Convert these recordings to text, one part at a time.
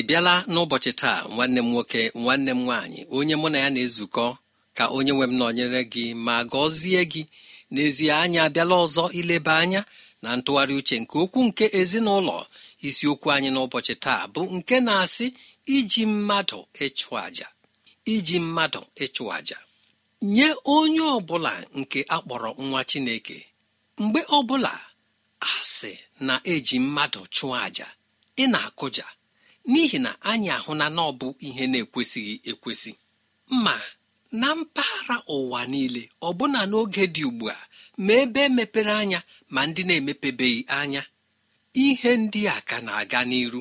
ị bịala n'ụbọchị taa nwanne m nwoke nwanne m nwaanyị onye mụ na ya na-ezukọ ka onye nwe m nọnyere gị ma gọzie gị n'ezie anyị abịala ọzọ ileba anya na ntụgharị uche nke okwu nke ezinụlọ isiokwu anyị n'ụbọchị taa bụ nke na-asị iji mmadụ ịchụ àjà iji mmadụ ịchụ àjà nye onye ọbụla nke akpọrọ nwa chineke mgbe ọbụla asị na-eji mmadụ chụọ àjà ị na-akụja n'ihi na anyị ahụ na ọ bụ ihe na-ekwesịghị ekwesị ma na mpaghara ụwa niile ọ ọbụna n'oge dị ugbu a ma ebe mepere anya ma ndị na-emepebeghị anya ihe ndị a ka na-aga n'iru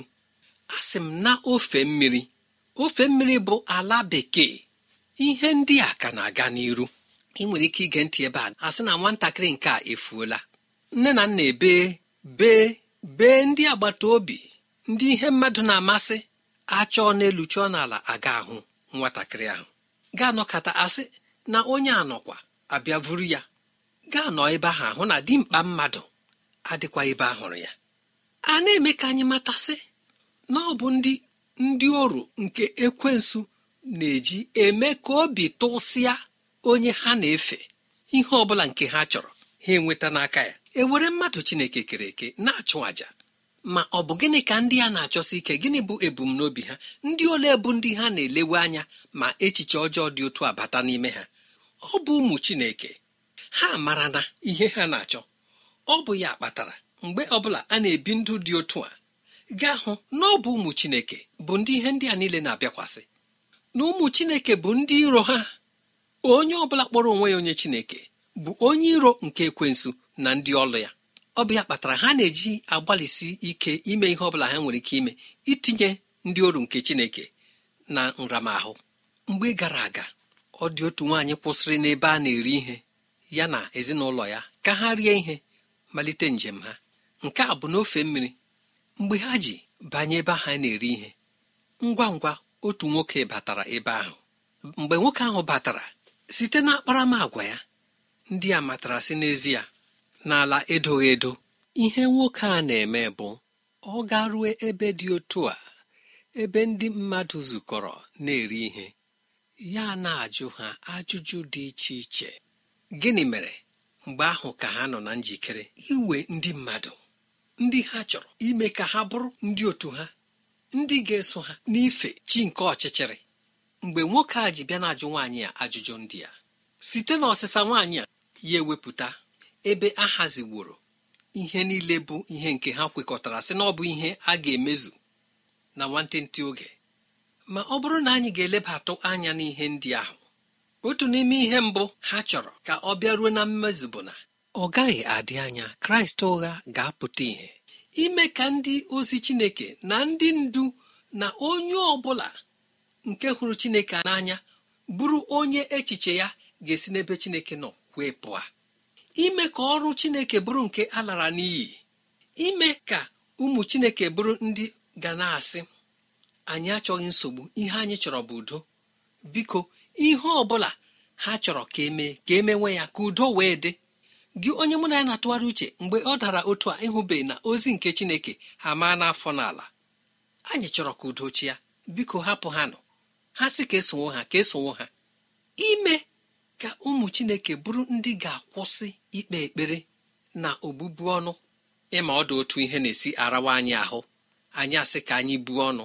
a sị m na ofe mmiri ofe mmiri bụ ala bekee ihe ndị a ka na-aga n'iru ị nwere ike ige ntị ebe a asị na nwatakịrị nke a efuola nne na nna ebe bee bee ndị agbata obi ndị ihe mmadụ na-amasị achọọ n'elu chọọ n'ala aga ahụ nwatakịrị ahụ ga-anọkata asị na onye anọkwa abịa vuru ya ga-anọ ebe ahụ ahụ na dimkpa mmadụ adịkwa ebe ahụrụ ya a na-eme ka anyị matasị na ọ bụ ndị ndị oru nke ekwensu na-eji eme ka obi tụsịa onye ha na-efe ihe ọ bụla nke ha chọrọ ha enweta n'aka ya e were mmadụ chineke kere eke na-achụ àjà ma ọ bụ gịnị ka ndị a na-achọsi ike gịnị bụ ebumnobi ha ndị ole bụ ndị ha na-elewe anya ma echiche ọjọọ dị otu abata n'ime ha ọ bụ ụmụ Chineke ha mara na ihe ha na-achọ ọ bụ ya kpatara mgbe ọbụla a na-ebi ndụ dị otu a gaa hụ na ọ bụ ụmụ Chineke bụ ndị ihe ndị a niile na-abịakwasị na ụmụ Chineke bụ ndị iro ha onye ọbụla kpọrọ onwe ya onye Chineke bụ onye iro nke ekwensu na ndị ọlụ ya ọbịa kpatara ha na-eji agbalịsi ike ime ihe ọbụla ha nwere ike ime itinye ndị oru nke chineke na nramahụ mgbe gara aga ọ dị otu nwaanyị kwụsịrị n'ebe a na-eri ihe ya na ezinụlọ ya ka ha rie ihe malite njem ha nke a bụ n'ofe mmiri mgbe ha ji banye ebe ha na-eri ihe ngwa ngwa otu nwoke batara ebe ahụ mgbe nwoke ahụ batara site na ya ndị a matara si n'ezie n'ala edoghị edo ihe nwoke a na-eme bụ ọ garue ebe dị otu a ebe ndị mmadụ zukọrọ na-eri ihe ya na-ajụ ha ajụjụ dị iche iche gịnị mere mgbe ahụ ka ha nọ na njikere iwe ndị mmadụ ndị ha chọrọ ime ka ha bụrụ ndị otu ha ndị ga-eso ha n'ife chi nke ọchịchịrị mgbe nwoke a ji bịa na-ajụ nwaanyị a ajụjụ ndị a site n'ọsịsa nwaanyị a ya ewepụta ebe a haziworo ihe niile bụ ihe nke ha kwekọtara sị na ọ bụ ihe a ga-emezu na nwantịntị oge ma ọ bụrụ na anyị ga-elebatụ anya n'ihe ndị ahụ otu n'ime ihe mbụ ha chọrọ ka ọ bịaruo na mmezu bụ na ọ gaghị adị anya kraịst ụgha ga-apụta ihe ime ka ndị ozi chineke na ndị ndu na onye ọ bụla nke hụrụ chineke n'anya bụrụ onye echiche ya ga-esi n'ebe chineke nọ wee pụọ ime ka ọrụ chineke bụrụ nke a lara n'iyi ime ka ụmụ chineke bụrụ ndị ga na-asị anyị achọghị nsogbu ihe anyị chọrọ bụ udo biko ihe ọ bụla ha chọrọ ka emee ka emewe ya ka udo wee dị gị onye mụ na ya na-atụgharị uche mgbe ọ dara otu a ịhụbeghị na ozi nke chineke ha maa n'afọ n'ala anyị chọrọ ka udo chia biko hapụ ha nọ ha sị ka esonwo ha ka esonwo ha ime ka ụmụ chineke bụrụ ndị ga-akwụsị ikpe ekpere na obụbu ọnụ ịma ọdụ otu ihe na-esi arawa anyị ahụ anyị asị ka anyị buo ọnụ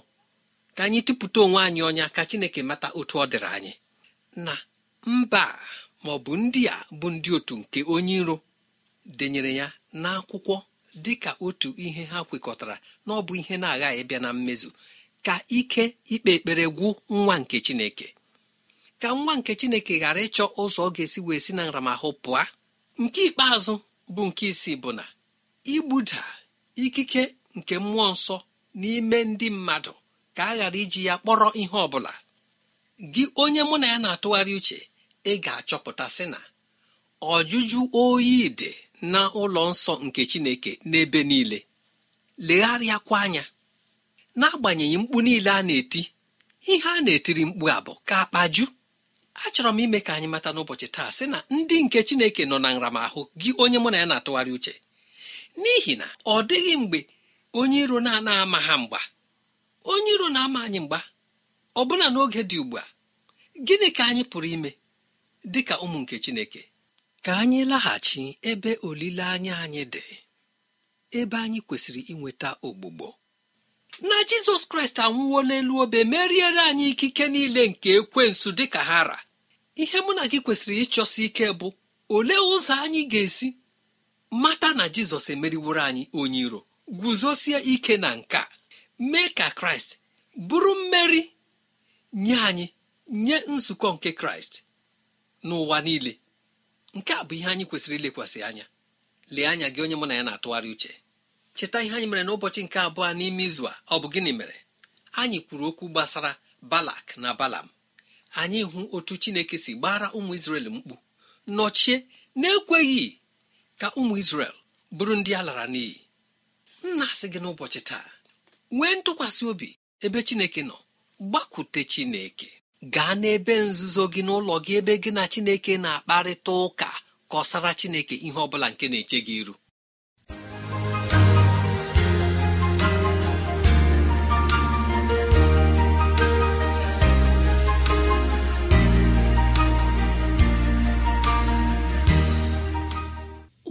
ka anyị tụpụta onwe anyị ọnya ka chineke mata otu ọ dịrị anyị na mba ma ọ bụ ndị a bụ ndị otu nke onye iro denyere ya n'akwụkwọ dị ka otu ihe ha kwekọtara na ọ bụ ihe na-aghaghị bịa na mmezu ka ike ikpe ekpere gwụ nwa nke chineke ka nwa nke chineke ghara ịchọ ụzọ ọ ga-esi wee si na nramahụ pụa. nke ikpeazụ bụ nke isii bụ na igbuda ikike nke mmụọ nsọ n'ime ndị mmadụ ka a ghara iji ya kpọrọ ihe ọ bụla gị onye mụ na ya na-atụgharị uche ị ga-achọpụta sị na ọjụjụ oyi dị na ụlọ nsọ nke chineke n'ebe niile legharịakwa anya n'agbanyeghị mkpu niile a na-eti ihe a na-etiri mkpu a bụ ka akpaju achọrọ m ime ka anyị mata n'ụbọchị taa sị na ndị nke chineke nọ na nramahụ gị onye mụ na ya na-atụgharị uche n'ihi na ọ dịghị mgbe onye iro na-ana ama ha mgba onye iro na-ama anyị mgba ọbụna n'oge dị ugbu a gịnị ka anyị pụrụ ime dị ka ụmụ nke chineke ka anyị laghachi ebe olileanya anyị dị ebe anyị kwesịrị inweta ogbugbo na jizọs kraịst anwụwo n'elu obe meriere anyị ikike niile nke ekwensu dịka ha ra ihe mụ na gị kwesịrị ịchọsi ike bụ olee ụzọ anyị ga-esi mata na jizọs emeriworo anyị onye iro guzosie ike na nka mee ka kraịst bụrụ mmeri nye anyị nye nzukọ nke kraịst n'ụwa niile nke a bụ ihe anyị kwesịrị ilekwasị anya lee anya gị onye mụ na ya na-atụgharị uche cheta ihe anyị mere n'ụbọchị nke abụọ n'ime izu a ọ bụ gịnị mere anyị kwuru okwu gbasara balak na balam anyị hụ otu chineke si gbara ụmụ isrel mkpu nọchie na-ekweghị ka ụmụ isrel bụrụ ndị a lara n'iyi nna asị gị n'ụbọchị taa nwee ntụkwasị obi ebe chineke nọ gbakwute chineke gaa n'ebe nzuzo gị n'ụlọ gị ebe gị na chineke na-akparịta ụka kọsara chineke ihe ọ nke na-eche gị iru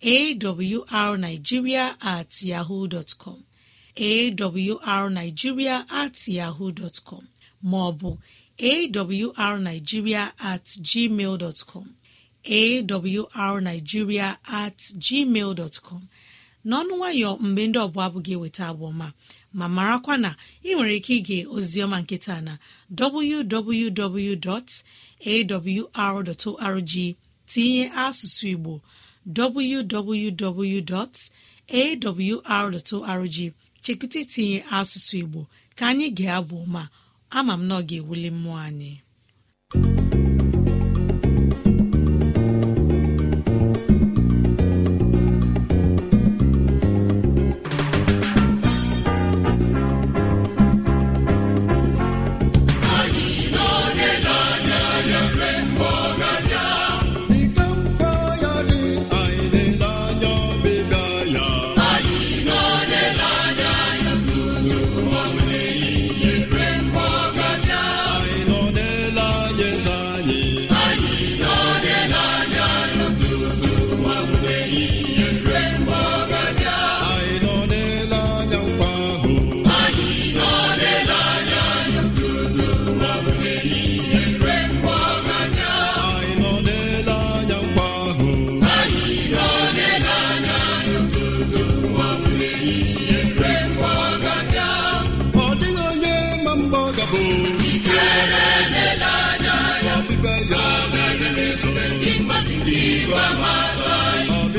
awrnigeria at yahoo dọtkọm awrnigeria at yahoo com maọbụ awrnigeria at gmail dọtkọm at gmail dọtkọm n'ọnụ nwayọ mgbe ndị ọbụla abụghị eweta abụọma ma marakwa na ị nwere ike ige ozioma nkịta na www.awr.org tinye asụsụ Igbo www.awr.org chekwụta itinye asụsụ Igbo ka anyị ga-abụ ma ama m na ọ ga-ewuli mmụọ anyị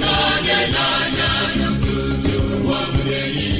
n'onye na-anya tutu ụwa mụrụ ehi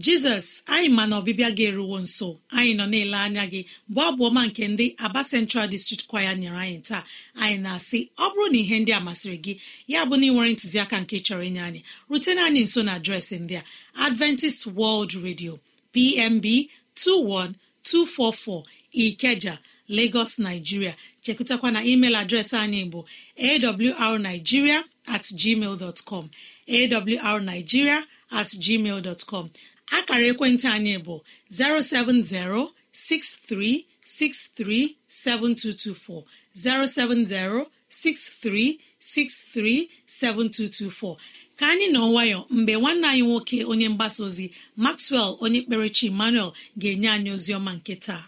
jizọs anyị ma na ọbịbịa gị eruwo nso anyị nọ na-ele anya gị bụ abụ ọma nke ndị aba central district kwaya nyere anyị taa anyị na-asị ọ bụrụ na ihe ndị a masịrị gị ya bụ na ị nwere ntụziaka nke chọrọ inye anyị rutena anyị nso na adreesị ndị a adventist world radio pmb 21244 ikeja lagos nigeria chekụtakwa na email adreesị anyị bụ awrnigeria at com at dot com akara ekwentị anyị bụ 07063637224 7224 ka anyị nọ nwayọ mgbe nwanne anyị nwoke onye mgbasa ozi Maxwell onye kperechi Emmanuel ga-enye anyị ozi ọma nke taa.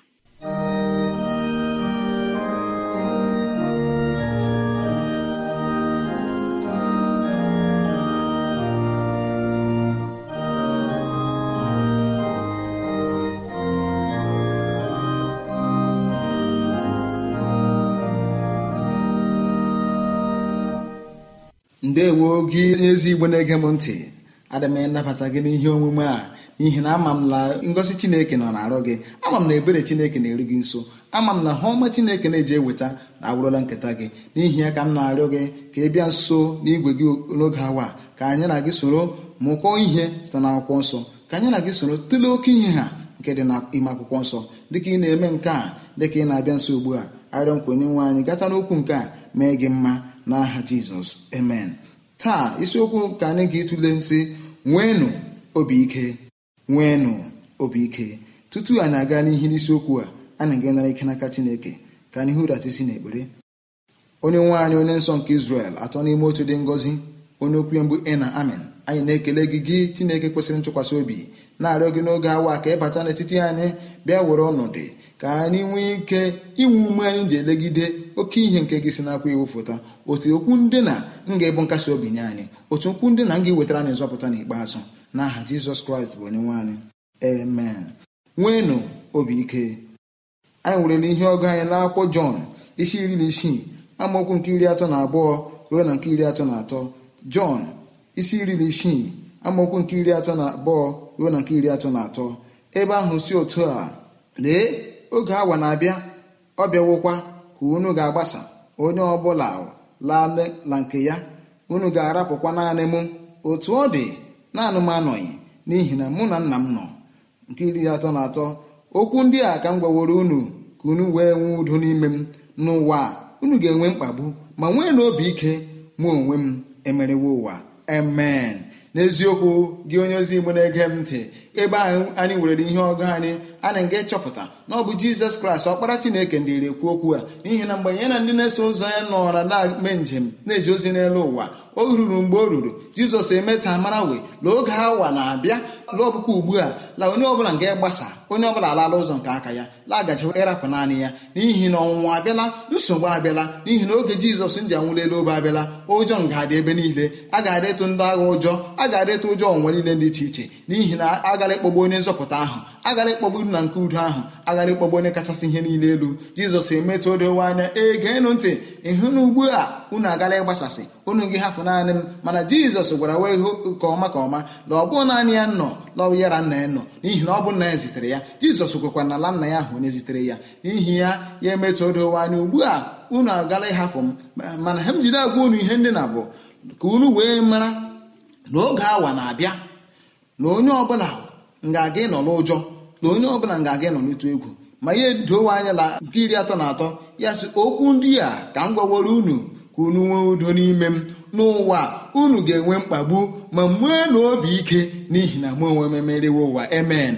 ndewo gị ezi igbo na-ege m ntị adị m gị n'ihe omume a n'ihi na ama m na ngosi chineke nọ na-arụ gị ama m na ebere chineke na-eru gị nso ama m na ha ọma chineke na-eji eweta na agwụrụla nketa gị n'ihi ya ka m na-arịọ gị ka ị bịa nso n'igwe gị n'oge awa ka anyị na gị soro mụkọọ ihe site n'akwụkwọ nsọ ka anyị na gị soro tụlee oke ihe ha nke dị ime akwụkwọ nsọ dịka ị na-eme nke a dịka ị na-abịa nso ugbu a arịọ nkwenye nwe anyị gata n'okwu nke a mee gị mma n'aha jizọs amen taa isiokwu ka anyị ga etule nsị nweenụ obi ike nweenụ obi ike tutu anyị aga n'ihi n'isiokwu a anyị ga-enara ike n'aka chineke ka anyị hụratisi n'ekpere onye nwaanyị onye nsọ nke isrel atọ n'ime otu dị ngọzi onye okwu mgbu ị na amen anyị na-ekele gị gị chineke kwesịrị ntụkwasị obi na-arịọ gị n'oge awa ka ịbata n'etiti anyị bịa were ọnọdụ ka anyị nwee ike inwe ume anyị ji elegide oke ihe nke gị si nakwa iwu foto otu okwu ndị na nga ịbụ nkasi obi nye anyị otu okwu ndị na nga iwetara anyị nzọpụta n'ikpeazụ n'aha jizọs kraịst bụ onye nwe anyị amen nweenụ obi ike anyị werele ihe ọgụ anyị n'akwụkwọ jọn isi iri na isii amaokwu nke iri atọ na abụọ ruo na nke iri atọ na atọ jọn isi iri na isii amaokwu nke iri atọ na abụọ ruo na nke iri atọ na atọ ebe ahụ si otu a lee oge awa na-abịa ọ bịawokwa ka unu ga-agbasa onye ọbụla laala nke ya unu ga-arapụkwa naanị mụ otu ọ dị naanị m anọghị n'ihi na mụ na nna m nọ nke iri atọ na atọ okwu ndị a ka m gwaworo unu ka unu wee nwee udo n'ime m n'ụwa unu ga-enwe mkpagbu ma nwee na obi ike mụ onwe m emerewo ụwa amen n'eziokwu gị onye ozi igbo na-ege m ntị ebe ahụ anyị nwere ihe ọgụ anyị a na-aga ịchọpụta na ọ bụ jizọs kraịst ọkpara chineke ndị rekwu okwu a n'ihi na mgbe ya na ndị na-eso ụzọ ya nọra na-eme njem na-eji ozi n'elu ụwa o ruru mgbe o ruru jizọs emeta mara we lụọ oge awa na-abịa lụọ ọbụkwa ugbu a la onye ọbụla nga gbasa onye ọbụla alala ụzọ nke aka ya lagajiwa ịrapụ naanị ya n'ihi na ọnwụnwa abịala nsogbu abịala n'ihi na oge jizọs nji anwụlelu obe abịala ụjọ nga adị ebe niile a ga-adịtụ ndị agha ụjọ a ga-adịtụ ụjọ ọnwa niile dị iche iche n'ihi na a agara ịkpọgbu onye nzọpụta ahụ agara ịkpọgbu iru na nke udo ahụ agara ịkpọgbu onye kachasị ihe niile elu jizọs emetụ odowe anya ee geenụ ntị ịhụ na ugbu a unu agara ịgbasasị unu gị hafụ naanị m mana jizọs gwara wee hụ ka ọma ka ọma na ọ naanị ya nọ n'ọwụ yara nna ya nọ n'ihi na ọ bụ nna ya zitere ya jizọs kwekwa na ala nna ya ahụ onye zitere ya n'ihi ya ya emetụ odowe anya ugbu a unu agala ịhafụ m mana ha m jide agwa unu ihe ndị na bụ ka unu wee mara na oge awa na-abịa na onye ọbụla nga aga ịnọ n'ụjọ na onye ọ bụla ọbụla aga ịnọ n'ịtụ egwu ma ihe dowe anya na nke iri atọ na atọ ya sị okwu ndị a ka m gwaworo unu ka unu nwee udo n'ime m n'ụwa unu ga-enwe mkpagbu ma nwee na obi ike n'ihi na mụ onwe m emerewe ụwa emen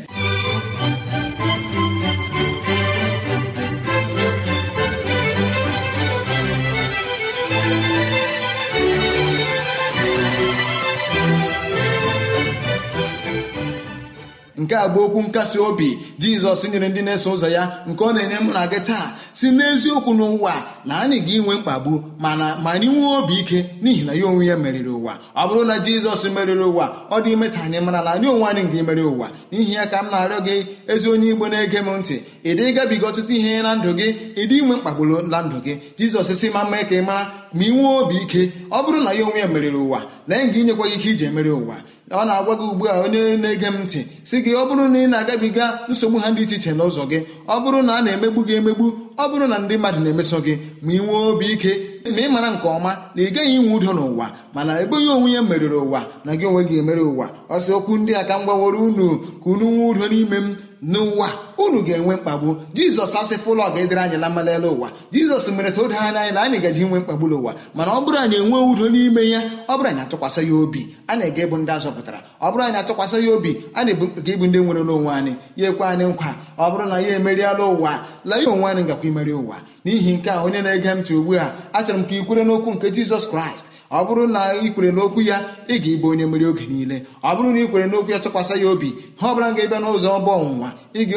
nke a bụ okwu nkasi obi jizọs nyere ndị na-eso ụzọ ya nke ọ na-enye mụ na gị taa si n'eziokwu n'ụwa na anyị ga-enwe mkpagbu mana ma anyị nwee obi ike n'ihi na ya onwe ya meriri ụwa ọ bụrụ na jizọs meriri ụwa ọ dị ime anyị mara na anyị onwe anyị ga-emeri ụwa n'ihi ya ka m na-arịọ gị ezi onye igbo na-ege m ntị ị dị gabiga ọtụtụ ihe na ndụ gị ịdị inwe mkpagburu na ndụ gị jizọs si ma mma ka ị mara ma ị nwee obi ike ọ bụrụ na ya onwe ya meriri ụwa lee nga inyekwa ike iji emeri ụwa ọ na-agwa gị ugbu a onye na-ege m ntị si gị ọ bụrụ na ị na-agabiga nsogbu ha dị iche iche n'ụzọ gị ọ bụrụ na a na-emegbu gị emegbu ọ bụrụ na ndị mmadụ na-emeso gị ma ị nwee obi ike ma ị mara nke ọma na ị gaghị inwe udo n'ụwa mana ebeghị onwe ya meriri ụwa na gị onwe gị emere ụwa ọ sị okwu ndị a ka m gbaworo unu ka unu nwee udo n'ime m n'ụwa unu ga-enwe mkpagbu jizọs asịfụ ụlọ ga-edere anyị na mmalele ụwa jizọs mere ta o anya anyị na anyị gaji inwe mkpagbu n'ụwa mana ọ bụrụ anyị enwe udo n'ime ya ọ bụrụ anyị atụkwasị ya obi a na-ega ebu ndị azọpụtara ọ bụrụ anyị atụkwasị ya obi a na-ebuga ịbụ ndị nwere n'onwe anyị ya ekwe anyị nkwa ọ bụrụ na ya emeriela ụwa la ya onwe anyị gakwa imeri ụwa n'ihi nke a onye na-ege ntị ugbu a achọrọ m ka ikwere n'okwu nke jizọs kraịst ọ bụrụ na ị kwere n'okwu ya ị ga-ịbụ onye mmeri oge niile ọ bụrụ na ị kwere n'okwu ya tụkwasị ya obi ha ọbụla ga-ebịa n'ụzọ ọbụ ọnwụnwa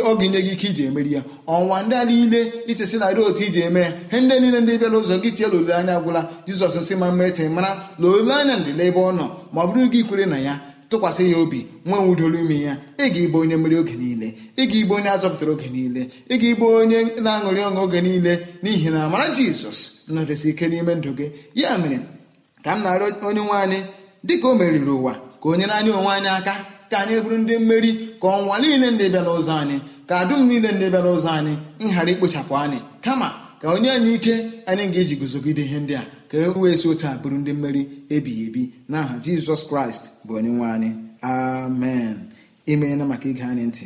oge nye gị ike iji emeri ya ọnwa ndị a niile ichesi narị otu iji eme ya he ndị niile ndị bịa n'ụzọ gị tie tiela anya agwụla jizọs nsị ma mma eche mara na anya ndịla ebe ọ nọ ma ọ bụrụ gị kwere na ya tụkwasị ya obi nwe nwudoro ime ya ị ga-ịbụ onye mmeri oge niile ị ga-ịbụ onye azọpụtara oge niile ị ga-ịbụ onye na-aṅụrị ọṅụ oge niile n'ihi na amara jizọs nọdesi ike n'ime ndụ gị ya mere ka m na-arịọ onye nwe anyị dịka o meriri ụwa ka o nyere anyị onwe anyị aka ka anyị bụrụ ndị mmeri ka ọnwa niile ndị bịara ụzọ anyị ka dum niile ndị bịara ụzọ anyị nhara ikpochapụ anyị kama ka onye anyị ike anyị ga-eji guzogide ihe ndị a ka e wee si otu a bụrụ ndị mmeri ebighị ebi n'aha jizọs kraịst bụ onye nwe anyị amen imeela maka ige anyị ntị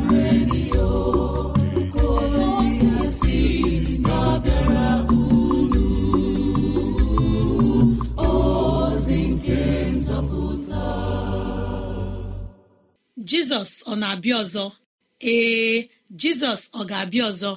jizọs ọ na-abịa ọzọ ee jizọs ọ ga-abịa ọzọ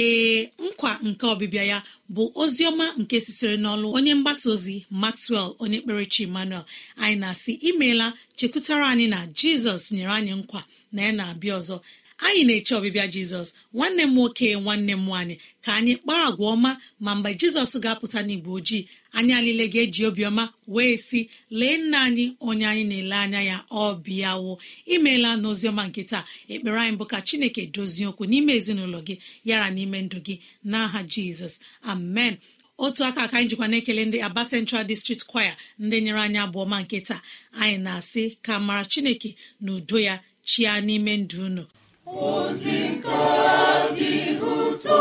ee nkwa nke ọbịbịa ya bụ ozi ọma nke sitere n'ọlụ onye mgbasa ozi maxwell onye kperechi emmanuel anyị na-asị imeela chekwutara anyị na jizọs nyere anyị nkwa na ya na-abịa ọzọ anyị na-eche ọbịbịa jizọs nwanne m nwoke nwanne m nwaanyị ka anyị kpaa agwa ọma ma mgbe jizọs ga-apụta n'igbo ojii anyị alile ga-eji obiọma wee sị lee nna anyị onye anyị na-ele anya ya ọ bịawo imeela n'oziọma nke taa ekpere anyị bụ ka chineke dozie okwu n'ime ezinụlọ gị yara n'ime ndụ gị n'aha jizọs amen otu aka aka anyị jikwa na-ekele ndị aba central district choir ndị nyere anyị abụọma ọma nke taa anyị na-asị ka mara chineke na udo ya chia n'ime ndụ unu ozi nke dị ụtọ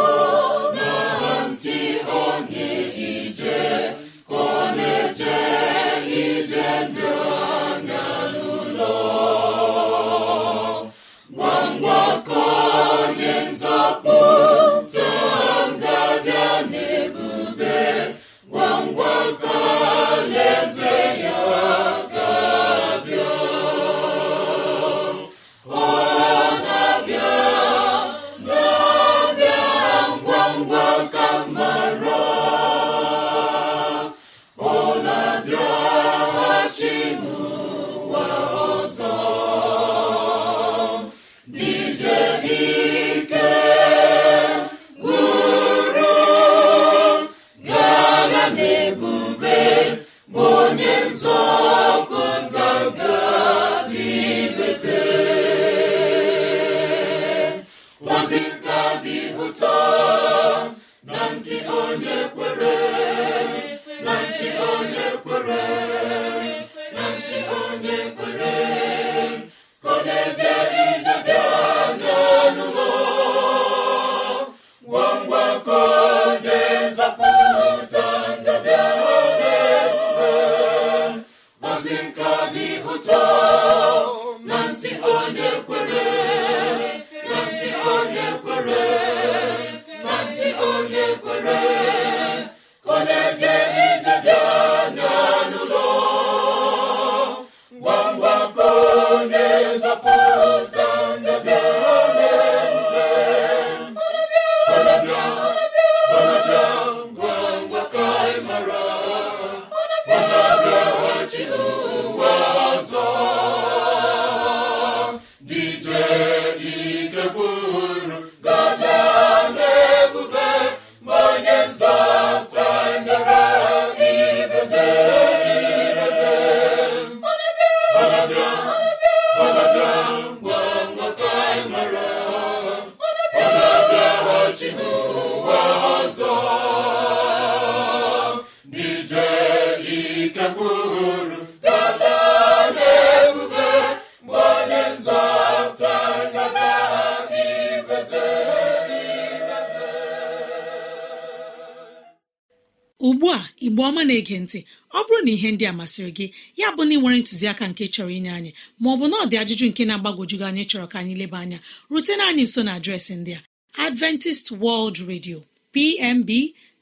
na-ege ntị ọ bụrụ na ihe ndị a masịrị gị ya bụ na ị nwere ntụziaka nke chọrọ inye anyị ma maọbụ na ọ dị ajụjụ nke na-agbagwojugo anyị chọrọ ka anyị leba anya rutena anyị nso na adreesị ndị a adventist world radio pmb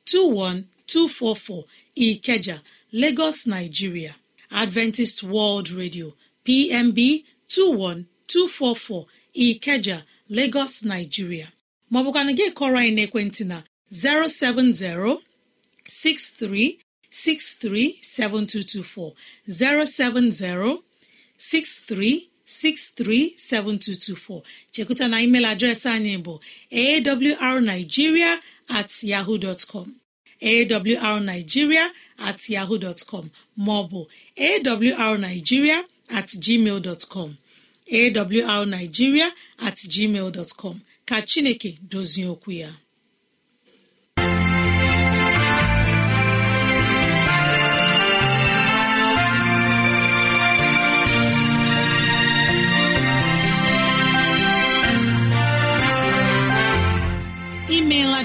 21244 ikeja lagos nigeria adventist world radio pmb 21244 ikeja lagos nigeria maọbụkwana gị kọrọ anyị n'ekwentị na 070 63 637224 chekuta na email adreesị anyị bụ awrnigeria at yahoo dot com at yahoo com maọbụ awrnigeria at gmail dot com awrnigeria at gmail dot com ka Chineke dozie okwu ya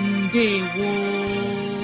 mbe gbo